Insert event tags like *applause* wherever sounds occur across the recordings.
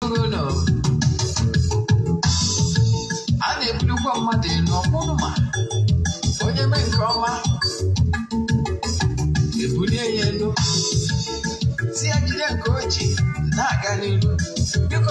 Gọvanọ a na-ebulukwa mmadụ elu ọkpụrụ ma onye mee nke ọma ebulie ya elu si na-aga n'ihu biko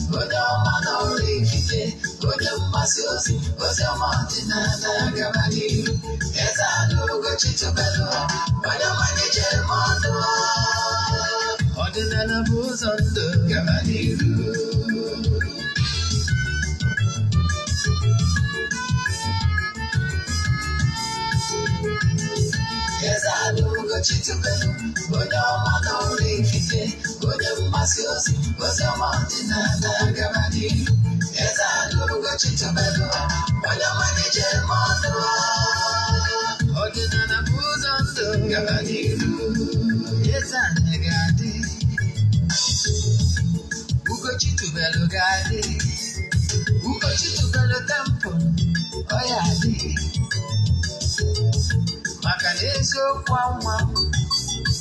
Você é uma não livre, você é uma ciosi, você é uma antinana gabari. Essa luga buzondo gabari. Essa luga chicho belo, olha uma não wajen masu yasi wasu na ta gaba ne ya tsaro lokacin tabarwa wani manajar mazuwa na buzon don gaba ne ya tsaro gade ugochi tubelu gade ugochi tubelu oya dị maka na eziokwu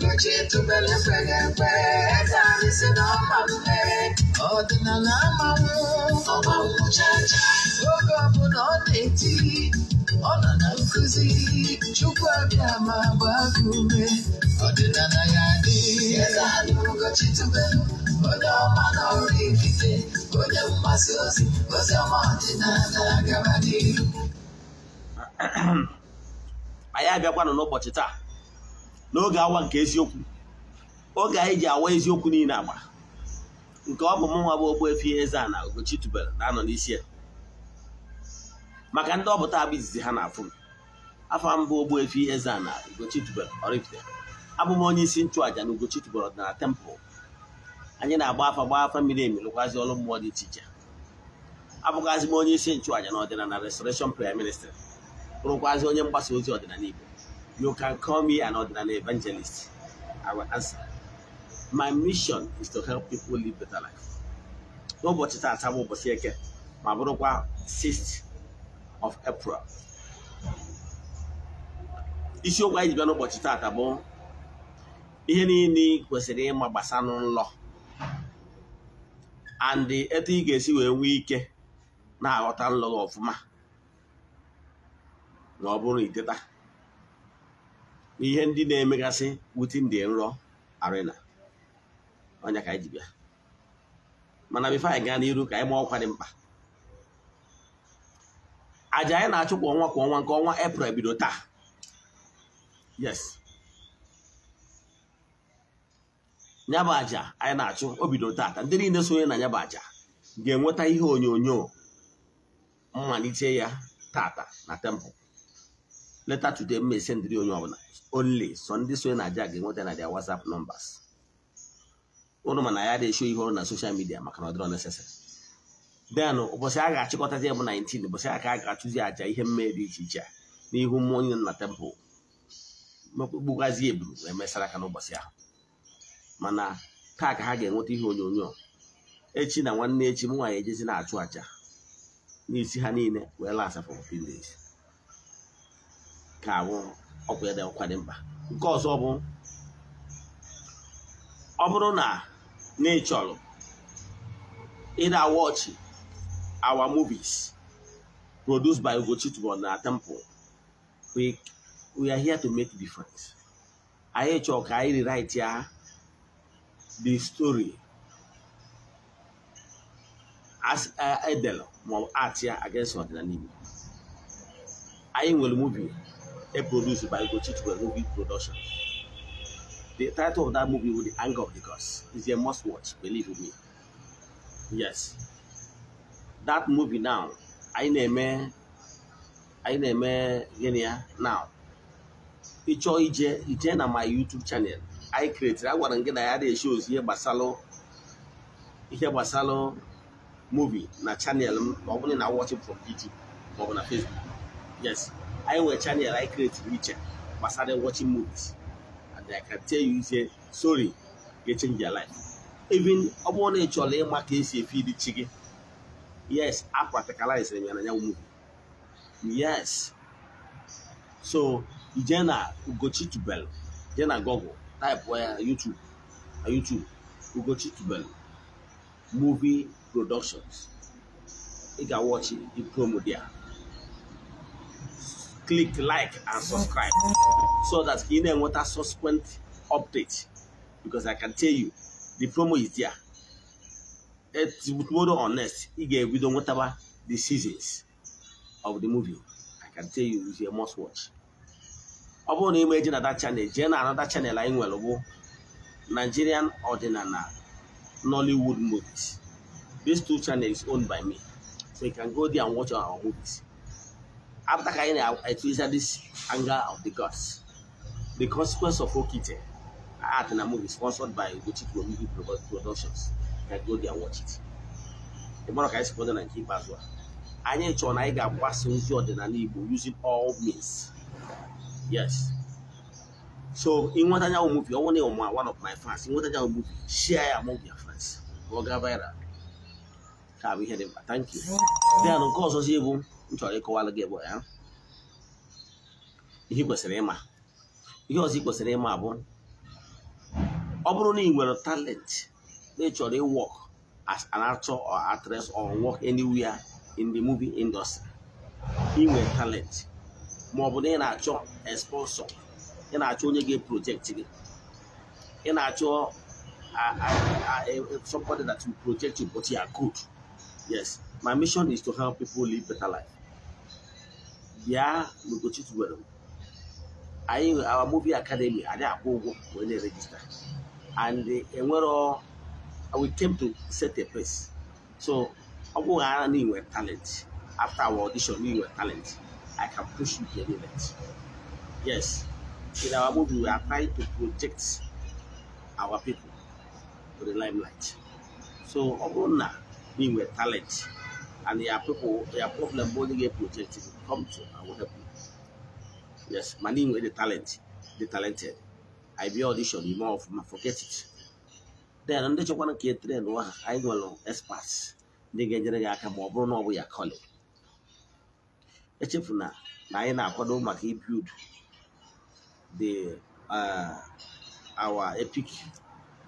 nkechi tụbere fere mpe Ọdịna na ọma mpe ọdịnala amanwụ oge ọbụla ọ na-eti ọ nọ na nkụzi chukwu abịa ma gbaa gị ume ọdịnala ya dị nkechi tụbere onye ọma na ọrụ onye mgbasa ozi ozi ọma anyị abịakwanụ n'ụbọchị taa n'oge awa nke eziokwu oge anyị ji awa eziokwu niile agba nke ọ bụ m nwa bụ Ogbuefi Eze-Ana Ugochi tubelu na-anọ n'isi ya maka ndị ọbụta abụ izizi ha na-afụ afọ mbụ ihe eze a Ugochi tubelu Oraifite abụm onye isi nchụàja na Ugochi tubelu ọdịnala tempụl anyị na-agba afa gba afa mmiri emi lụkwazi ọrụ mmụọ dị iche iche abụghazị m onye isi nchụàja na ọdịnala Restoration Prayer Ministry bụrụkwazi onye mgbasa ozi ọdịnala Igbo You can call me an ordinary evangelist. I will answer. My mission is to help people live better life. n'ụbọchị taata bụ ụbọchị eke ma bụrụkwa 6th of April isiokwu anyị ji bịa n'ụbọchị taata bụ ihe niile kwesịrị ịma gbasanụ nlọ and etu ị ga-esi wee nwee ike na-aghọta nlọ ọfụma ma ọ bụrụ iteta ihe ndị na-emegasị within ndị nrọ arena ọnya ka anyị ji bịa mana bifo anyị gaa n'iru ka anyị ma ọkwa dị mkpa aja anyị na-achụ kwa ọnwa kwa ọnwa nke ọnwa eprel bido taa yes nyaba aja anyị na-achụ obido taata ndị niile sonye na nyaba aja ga-enweta ihe onyonyo mmalite ya tata na tempụl leta today m esendịrị onye ọbụla only so ndị so na aja ga-enweta na dia whatsapp numbers ụnụ mana ya na-esho ihe ọrụ na soshal midia maka na ọ dịrọ necessary then ụbọchị oh, a ga-achịkọtazi ya bụ 19 ụbọchị a ka a ga-achụzi aja ihe mmehie dị iche iche a n'ihu mmụọ onye nna tempụl mkpụgbugazi eburu mesara aka n'ụbọchị ahụ mana taa ka ha ga-enweta ihe onyonyo echi na nwanne echi m nwanyị ejezi na-achụ aja n'isi ha niile wee laa for 15 days ka awụ ọkwa ya dị ọkwa dị mkpa nke ọzọ bụ ọ bụrụ na n'ịchọrọ ịda wọchị our movies produced by Ugochi Tubor na Temple we we are here to make difference anyị chọrọ ka anyị rewrite ya the story as eh, edel ma ọ bụ art ya against ọdịnala Igbo anyị nwere movie a produced by Gochi to a movie production. The title of that movie was The Anger of the Gods. It's a must watch, believe me. Yes. That movie now, I name I name Genia now. Ịchọọ ije ije na my YouTube channel. I created I gwara gị na ya dị shows ihe gbasalụ ihe gbasalụ movie na channel m ma ọ bụrụ na watch from YouTube ma ọ bụ na Facebook. Yes. anyị nwere chanel anyị kretiri iche gbasara watching movies and I can tell you say sorry ga change your life even ọ bụrụ na ị chọrọ ịma ka esi efi dị chi gị yes I practicalizere m ya na movie yes so ije na Ugochi Tubelu jee na Google type ya YouTube na YouTube Ugochi Tubelu movie productions ị ga it the pro there click like and subscribe so that you know what a subsequent update because I can tell you the promo is there. It's tomorrow or next, you get we don't whatever the seasons of the movie. I can tell you it's a must watch. ọ bụrụ na ị ma na that channel jee na another channel anyị nwere bụ Nigerian Ordinary Nollywood Movies. These two channels owned by me. So you can go there and watch our movies. after carrying I, I treasure this anger of the gods. The consequence of Okite art and a movie sponsored by Gucci Promihi Productions. You can go there and watch it. The more I support and keep as well. Anyị chọrọ na anyị ga-agbasa ozi ọdịnala Igbo using all means. Yes. So, ịnweta nyanwụ movie, ọ bụrụ na one of my fans, ịnweta nyanwụ movie, share ya among your friends. Ọ ga viral. Ka bụ ihe dị Thank you. Then nke ọzọzi bụ m chọrọ ịkọwalụ gị bụ ya ihe kwesịrị ịma ihe ọzọ ị kwesịrị ịma bụ ọ bụrụ na ị nwere talent na ị chọrọ ịwọk as an actor or actress or work anywhere in the movie industry ị talent ma ọ bụ na ị na-achọ sponsor ị na-achọ onye ga-project gị ị na-achọ somebody that will project you but you are good yes my mission is to help people live better life bịa n'Ugochi tubelu anyị our movie academy anyị akwụ ụgwọ wee na-erejista and eh, enwere we came to set a place so ọ bụghị ara na inwe talent after our audition na inwe talent I can push you to the yes in our movie we are trying to project our people to the limelight so ọ bụrụ na inwe talent and your people, your problem holding a project will com to and will help you. Yes, money with the talent, the talented. I be audition, you more of forget it. Then ndị chọkwara ka etere n'ụwa ha anyị nwere experts ndị ga-enyere gị aka ma ọ bụrụ na ọ bụ ya kọlị echefu na na anyị na-akwado maka ibuild the uh, our epic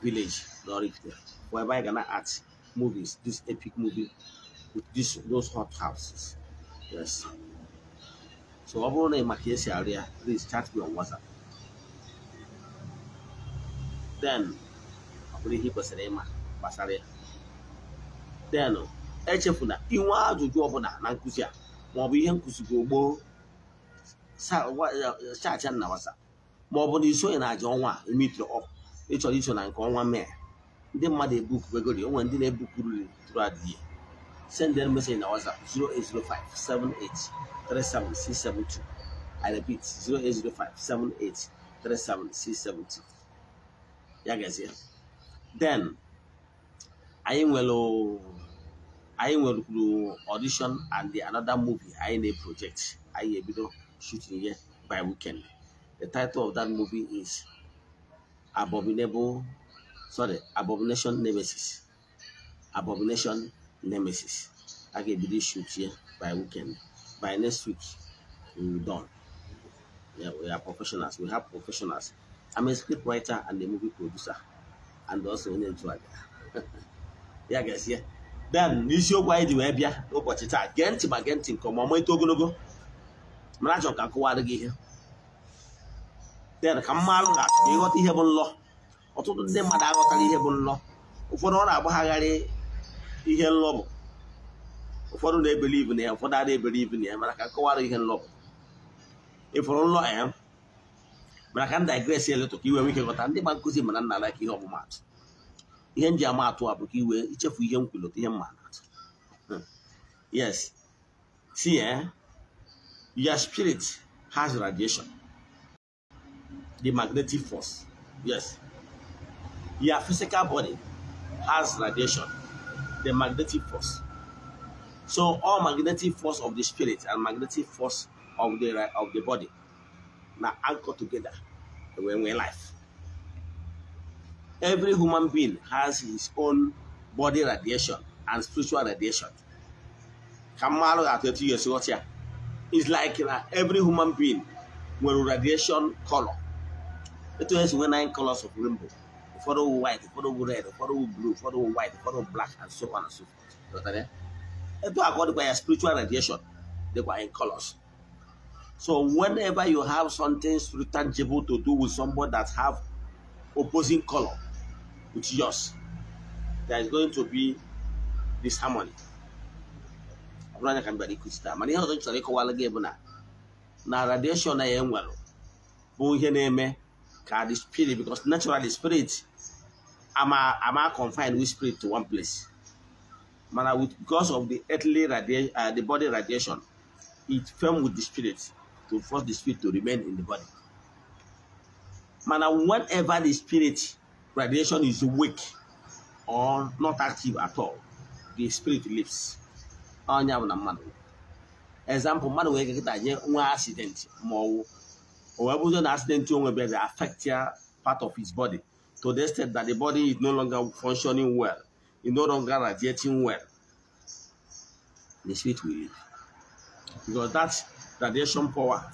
village n'Oraifite bụ ebe anyị ga na art movies this epic movie with this those hot houses yes so ọ bụrụ na ị maka esi arị please chat me on WhatsApp then ọ bụrụ ihe ị kwesịrị ịma gbasara ya then echefula inwe ajụjụ ọbụla na nkụzi a maọbụ ihe nkụzigo gboo chacha na WhatsApp maọbụ na isonye na aja ọnwa imitri ọkụ ịchọrọ iso na nke ọnwa mee ndị mmadụ ebupụegori o nwere ndị na ebukuru tụrụ adịghị send them message in our WhatsApp 0805 78 37672. I repeat 0805 78 37672. Ya gazie. Then anyị nwere anyị nwerekwuru audition and the another movie anyị ne project anyị ebido shooting ya by weekend. The title of that movie is Abominable sorry Abomination Nemesis. Abomination nemesis a ga-ebido ishuchie by weekend by next week we will done yeah, we are professionals we have professionals i'm a script writer and a movie producer and also onye nchụaja ya gazie then n'isiokwu anyị dị wee bịa n'ụbọchị taa gee ntị ma gee ntị nke ọma ọma eto ogologo mara achọrọ ka nkụwarị gị ihe then ka mma arụ na ịghọta ihe bụ nlọ ọtụtụ ndị mmadụ aghọtara ihe bụ nlọ ụfọdụ ọ na-agbagharị ihe nlọ bụ, ụfọdụ na-ebelivu na ya ụfọdụ ada ebelivu na ya mara ka nkọwara ihe bụ. ịfụrụ nlọ ya mana ka m digresi eletọ ka iwe nwee ike ghọta ndị gba nkụzi mana nna ala ka ihe ọmụmatụ ihe m ji ama atụ a bụ ka iwe ichefu ihe m ihe mma atụ hmm. yes si ya your spirit has radiation the magnetic force yes your physical body has radiation the magnetic force. So all magnetic force of the spirit and magnetic force of the of the body now anchor together when we're life. Every human being has his own body radiation and spiritual radiation. Kamalu at 30 years old here. It's like uh, every human being with radiation color. It has nine colors of rainbow. ụfọdụ white ụfọdụ red ụfọdụ blue ụfọdụ white ụfọdụ black and so on and so forth etu according to your spiritual radiation they were in colors so whenever you have something tangible to do with somebody that have opposing color with yours there is going to be disharmony ọ bụrụ na na radiation na ya enwere bụ ihe na-eme ka the spirit because naturally spirit am I am I confined with spirit to one place? Mana with because of the earthly radiation, uh, the body radiation, it firm with the spirit to force the spirit to remain in the body. Mana whenever the spirit radiation is weak or not active at all, the spirit lives. Onye bụ na Example mmadụ wee get nye accident ma ọ wụ o na accident onwe bịa affect part of his body. to the extent that the body is no longer functioning well, it no longer radiating well, the spirit will leave. Because that radiation power,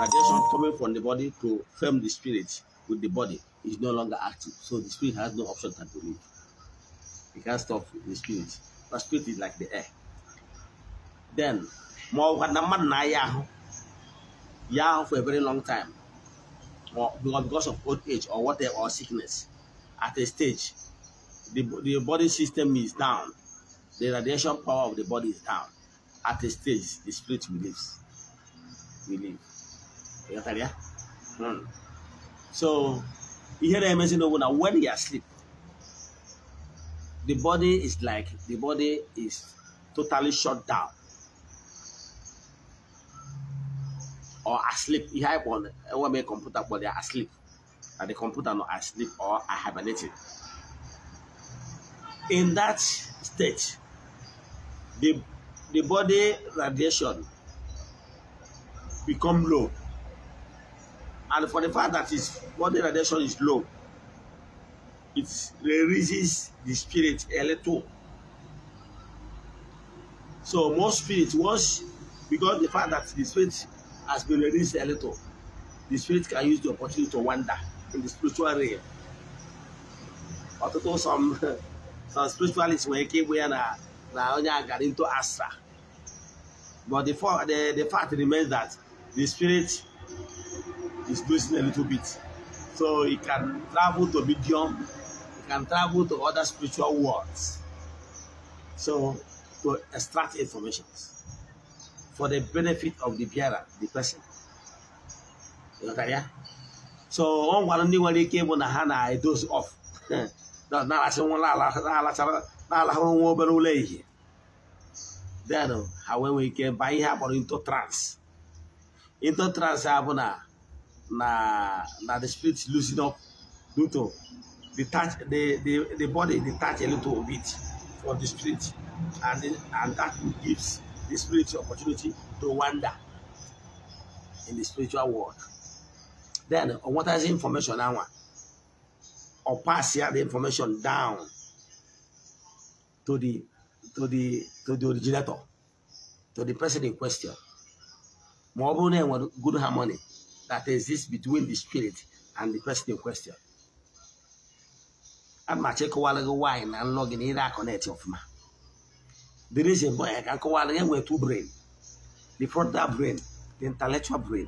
radiation coming from the body to firm the spirit with the body is no longer active. So the spirit has no option than to leave. You can't stop the spirit. But spirit is like the air. Then, for a very long time, or because of old age or whatever, or sickness at a stage, the, the body system is down. The radiation power of the body is down. At a stage, the spirit believes. We You got hmm. So, you hear the amazing over now. When you are asleep, the body is like, the body is totally shut down. Or asleep. You have one, one computer, but they are asleep. at the computer and I sleep or I hibernated. In that state, the, the body radiation become low. And for the fact that its body radiation is low, it releases the spirit a little. So most spirit once because the fact that the spirit has been released a little, the spirit can use the opportunity to wander in the spiritual realm. Ọtụtụ some some spiritualists nwere ike ịbụ ya na na onye agara into astra. But the, the, the fact remains that the spirit is losing a little bit. So it can travel to medium, it can travel to other spiritual worlds. So to extract information for the benefit of the bearer, the person. You know, yeah? so ọ nwara ndị nwere ike ịbụ na ha na-edozi ọf *laughs* na-alacha na-alahụrụ nwa obere ụlọ ehihie then ha nwee ike baa ihe akpọrọ into trance into trance a bụ na na the spirit losing up due to detach the, the, the body detach a little bit for the spirit and, and that gives the spirit opportunity to wander in the spiritual world. Then uh, what is information Now, or pass here the information down to the to the to the originator to the person in question. Ma ọ bụrụ good harmony that exists between the spirit and the person in question. I'm amachi ịkọwara gị nwaanyị na nlọ in na ire akọnetị ọfụma the reason bụ ya ka nkọwara gị nwee two brain the frontal brain the intellectual brain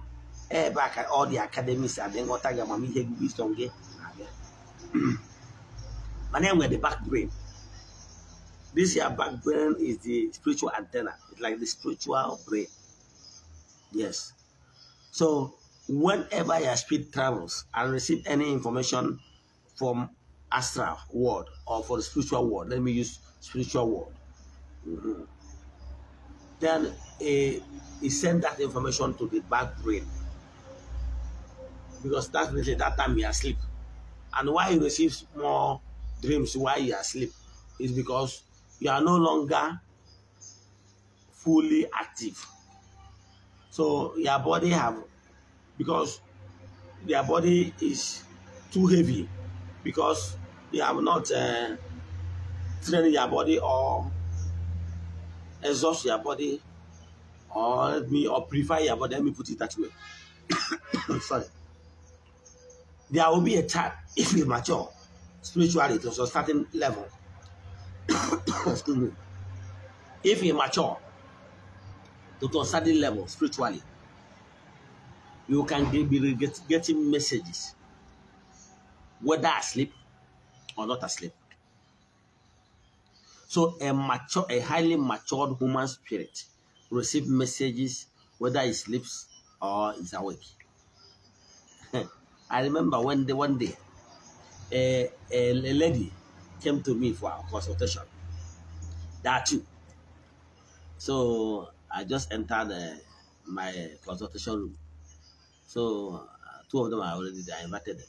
ebe aka ọ dị akademis adị nghọta gị amamihe gị wisdom gị na-abịa *clears throat* mana enwe the back brain this your back brain is the spiritual antenna it's like the spiritual brain yes so whenever your spirit travels and receive any information from astral world or for the spiritual world let me use spiritual world mm -hmm. then it, eh, it send that information to the back brain because that means that time you are asleep. And why you receive more dreams while you are asleep is because you are no longer fully active. So your body have because their body is too heavy because they have not uh, trained your body or exhaust your body or let me or purify your body. Let me put it that way. *coughs* Sorry. there will be a time if you mature spiritually to a certain level. *coughs* Excuse me. If you mature to a certain level spiritually, you can be getting messages, whether asleep or not asleep. So a mature, a highly matured human spirit receives messages whether he sleeps or is awake. I remember one day, one day, a, a, a lady came to me for a consultation. That too. So I just entered uh, my consultation room. So uh, two of them are already there. I invited them.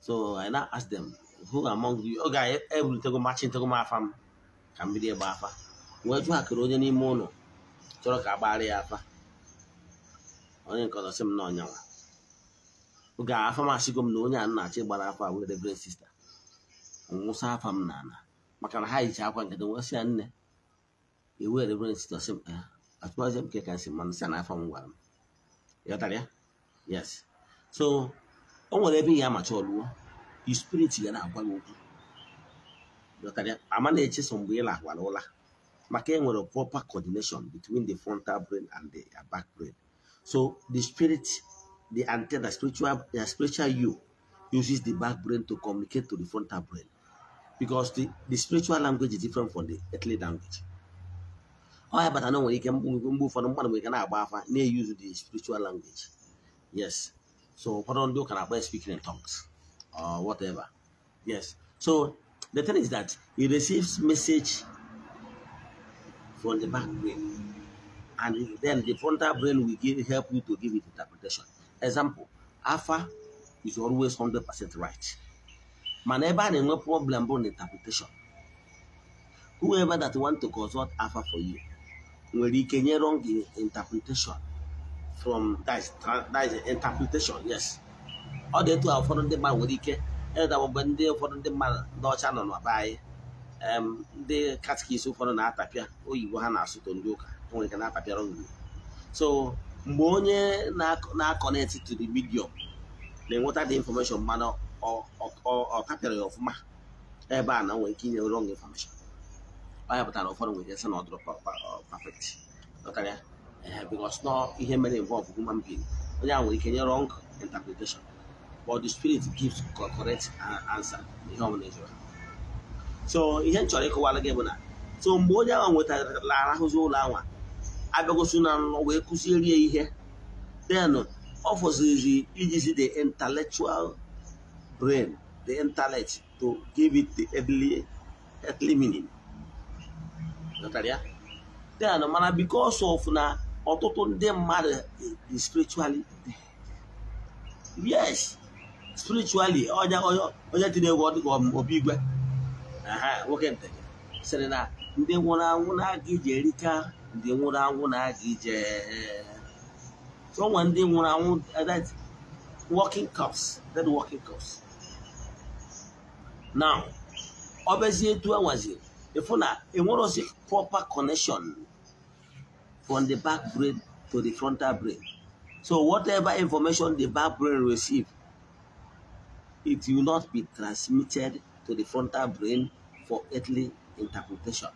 So I now asked them, who among you? Okay, every take a match into my farm. Can be there, Bafa. Where to have Kuroja money? mono? I kabari afa. Only because I'm not young. ga-afa m asịgo m na onye a na-achị gbara afa were reverend sista nwụsa afa m na ana maka na ha yicha akwa nkịtị nwesị ya nne ewe reverend sista sị m eh, atụmazi m ke ka nsị mana sị na afọ m gwara m ịghọtara ya yes so o nwere ebe ihe amacha ọlụwo spirit ya na-agwa gị okwu ama na-echeso mgbe ịla lahwara ụla maka enwere proper coordination between the frontal brain and the back brain so the spirit the antenna, spiritual, the spiritual you uses the back brain to communicate to the frontal brain. Because the, the spiritual language is different from the earthly language. Ọ oh, But I know ike mgbe ụfọdụ mmadụ nwere ike na-agba afa They use the spiritual language. Yes. So ụfọdụ do can na-akpọ speaking in tongues or whatever. Yes. So the thing is that he receives message from the back brain and then the frontal brain will give, help you to give it interpretation. example afa is always 100% right mana ebe a na-enwe problem bụ na interpretation whoever that want to consult afa for you nwere ike nye wrong interpretation from that is interpretation yes ọ dị etu a ụfọdụ ndị mmadụ nwere ike e ndị ụfọdụ ndị mmadụ ndị ọcha nọ n'ọba anyị ndị katikis ụfọdụ na-atapịa oyibo ha na-asụto ndị ụka nwere ike na-atapịara mgbe onye na-akọnetị to the medium na-enweta the information mana ọ kapịara ya ọfụma ebe a na nwere ike inye wrong infọmeshọn ọ ya pụtara ụfọdụ nwere ike sị na ọ dụrụ perfect dọtara ya eh, because nọ ihe mere involve human being onye a nwere ike nye wrong interpretation but the spirit gives correct answer ihe ọbụla ịjụrụ so ihe m chọrọ ịkọwara gị bụ na so mgbe onye ahụ nwetarala arahụzi ụlọ anwa abịagosi na nọ wee kụziere ya ihe then ọ fọzirizi ijizi the intellectual brain the intellect to give it the early, early meaning then mana because of na ọtụtụ ndị mmadụ dị spiritually yes spiritually onye tinye egwu dịka obi igwe nwoke ntị sịrị na ndị nwụrụ anwụ na-aga iji erika ndị nwụrụ anwụ na-aga ije eh, onwe ndị nwụrụ anwụ eh, that working course, that working course. now ọ bụzi etu anwaziri ịfụ na enwerozi proper connection from the back brain to the frontal brain so whatever information the back brain receive it will not be transmitted to the frontal brain for earthly interpretation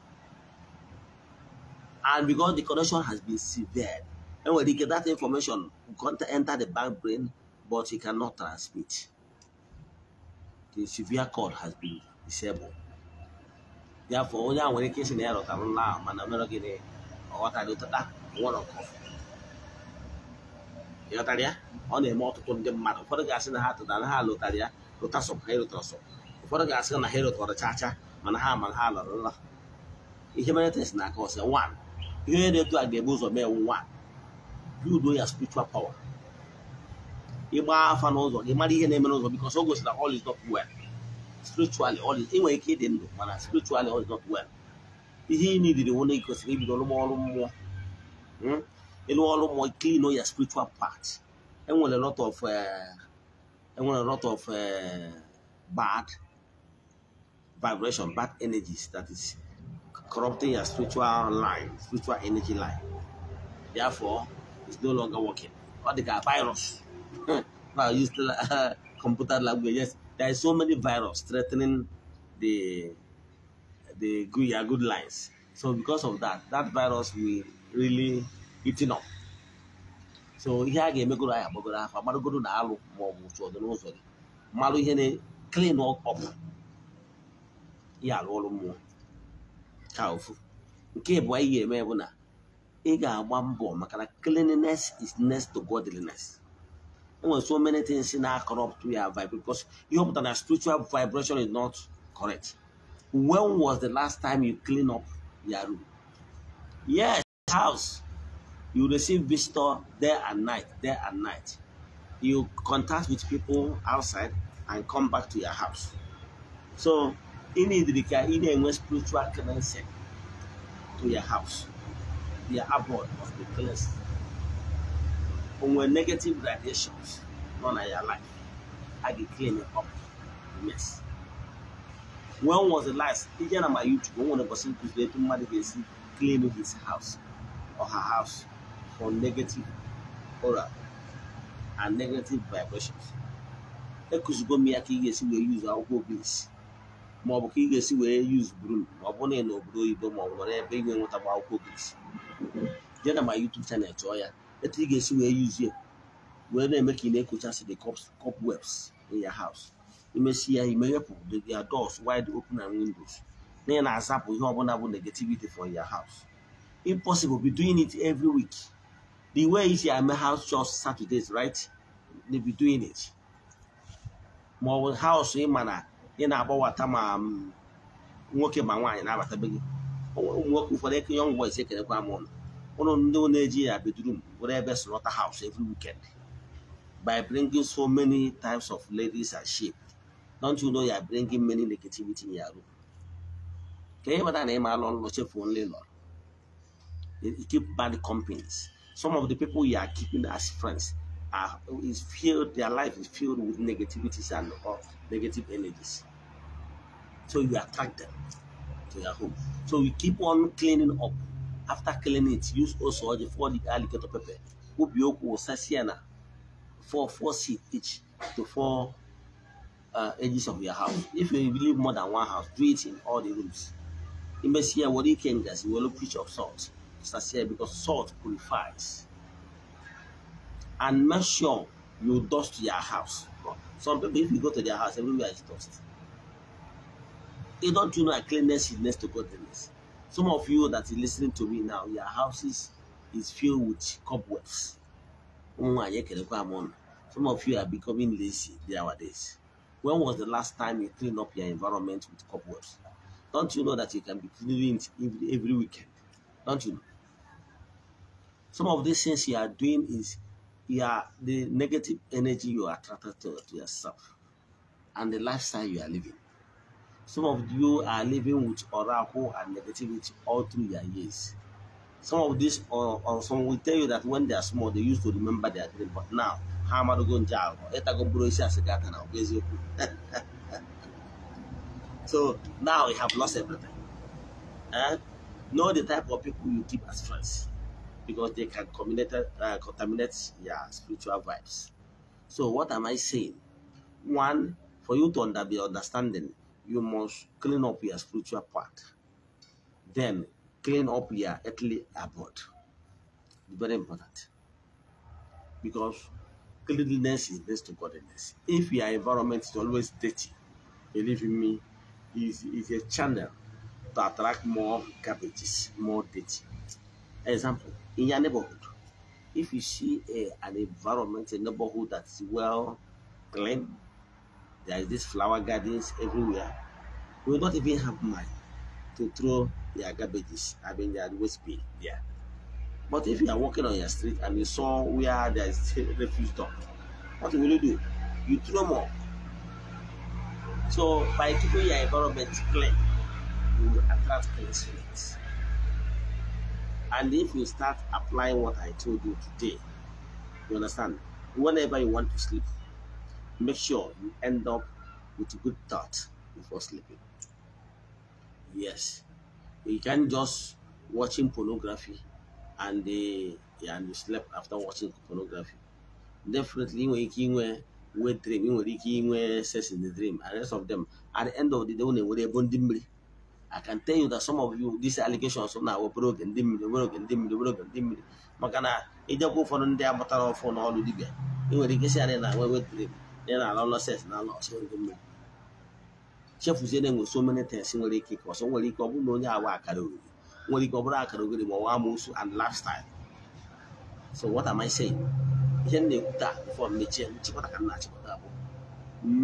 and because the connection has been severed enwere ike that information can't enter the bank brain but it cannot transmit the severe cord has been disabled therefore onye a nwere ike na ya nla ya na ọtụtụ ndị mmadụ ụfọdụ ga na ha tụtara ya na ha ha ihe mere test na aka one ihe na-edu a ga-ebu ụzọ mee nwa udo ya spiritual power ịgba afa n'ụzọ gị mara ihe na-eme n'ụzọ because o gosi na all is not well spiritually all is nwere ike ịdị ndụ mana spiritually all is not well ihe ị nidiri nwere kwesịrị ibido ọrụ mmụọ hmm? ịlụ ọrụ mmụọ clean ya spiritual part enwere lot of enwere eh, e lot of eh, bad vibration bad energies that is corrupting your spiritual line, spiritual energy line. Therefore, it's no longer working. What they got virus. I used to, uh, computer language. Yes, there is so many virus threatening the the good, your good lines. So because of that, that virus will really eating up. So here again, ihe a ga-emegoro anyị agbagoro afọ amarụgoro na alụ ma ọ bụ otu ọdụ n'ụzọ gị malụ here, na clean up Yeah, all of mmụọ pụcha ụfụ nke bụ anyị ga-eme Ega na ị cleanliness is next to godliness enwere so many things in our corrupt we ya vibe because ihe pụtara na spiritual vibration is not correct when was the last time you clean up your room yes house you receive visitor there and night There and night you contact with people outside and come back to your house so ị na-edere ka ị na-enwe spiritual cleansing to your house your abode of the place cleansing onwe negative radiations nọ na your life a ga-eclean up the mess when was the last ije na my YouTube o nwere ụbọchị nkụziri etu mmadụ ga-esi clean his house or her house for negative aura and negative vibrations ekuzigo m ya ka ị ga-esi wee use akwụkwọ obisi ma ọ bụ ka ị ga-esi wee yuz brum ma ọ bụrụ na ị na obodo oyibo ma ọ bụ n'ebe ị ga-enwetagba akwụkwọ gris jee na ma YouTube channel chọọ ya etu ị ga-esi wee yuzie wee na-eme ka ị na-ekochasị the cobwebs in your house imesi ya imeghepụ their doors wide open and windows na ị na-azapụ ihe ọbụla bụ negativity for ya haus. impossible be doing it every week the way isi eme house chores Saturdays right they be doing it ma ọ bụ house ị ma na ị na-agbawata ma um, nwoke ma nwaanyị na-abata be gị nwoke ụfọdụ eke young boys ekelekwa m ụlọ ụlọ ndị na-eji ya bedroom were ebe slaughter house every weekend by bringing so many types of ladies and sheep don't you know you are bringing many negativity in your room ka ihe bata na ịma alụ ọlụ chefuo nle lọrọ you keep bad companies some of the people you are keeping as friends are is filled their life is filled with negativities and uh, negative energies So you attach them to your home. So you keep on cleaning up. After cleaning it, use also the four alligator pepper. Ubioku sasiana for four seed each to four uh, edges of your house. If you live more than one house, do it in all the rooms. In Messiah, what you can does you will preach of salt. Sasiana because salt purifies. And make sure you dust your house. Some people, if you go to their house, everywhere is dust. They don't you know that cleanliness is next to godliness. Some of you that is listening to me now, your houses is filled with cobwebs. Some of you are becoming lazy nowadays. When was the last time you clean up your environment with cobwebs? Don't you know that you can be cleaning every, every weekend? Don't you know? Some of these things you are doing is you are the negative energy you are attracted to, to yourself and the lifestyle you are living. Some of you are living with oracle and negativity all through your years. Some of these, or, uh, or uh, some will tell you that when they are small, they used to remember their dream, but now, how am I going to jail? So now you have lost everything. And eh? know the type of people you keep as friends because they can contaminate, uh, contaminate your spiritual vibes. So what am I saying? One, for you to under, be understanding, you must clean up your spiritual part. Then clean up your earthly abode. Very important. Because cleanliness is next to godliness. If your environment is always dirty, believe me, is is a channel to attract more garbages, more dirty. Example, in your neighborhood, if you see a, an environment, a neighborhood that's well cleaned. there is this flower gardens everywhere we will not even have money to throw their garbages i mean their waste bin there but if you are walking on your street and you saw where there is refuse dump what will you do you throw more so by keeping your environment clean you will attract clean streets. and if you start applying what i told you today you understand whenever you want to sleep make sure you end up with a good thought before sleeping. Yes, you can't just watching pornography and yeah, and you sleep after watching pornography. Definitely, when we dream, we sex in the dream, and rest of them at the end of the day, when they're bonding. I can tell you that some of you, these allegations now were broken, dimly, broken, dimly, broken, dimly. Makana, I, don't go for the day, but all for all the day. You will get it now, we will dream. naira ala lọses na ala ọsọ ndị mmiri chefuzie na enwe so many things nwere ike ka ọsọ nwere ike ọ bụrụ na onye awa akara oriri nwere ike ọ bụrụ akara oriri ma ọwa amụsụ and lifestyle so what am I saying ihe m na-ekwu taa befọ mmechie nchịkọta ka m na-achịkọta bụ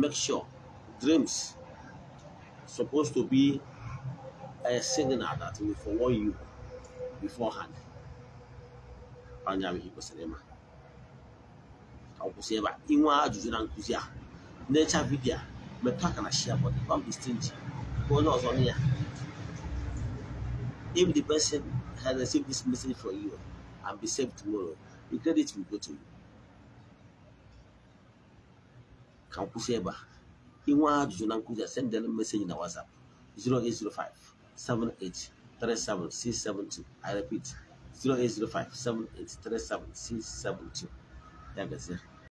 make sure dreams supposed to be a signal that will forewarn you beforehand anya ihe kwesịrị ịma ọkwụsị ebe a inwe ajụjụ na nkụzi a na-echa vidiyo metụ aka na shia bọdụ kọmbistinji bụ onye ọzọ na ya if the person has received this message for you and be saved tomorrow the credit will go to you ka nkwụsị ebe a inwe ajụjụ na nkụzi a send them message na whatsapp 0805 78 37672 i repeat 0805 78 37672 ya gazie